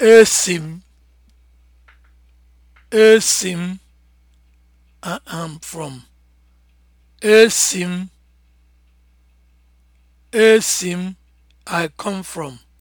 esi m esi m I am from esi m m I come from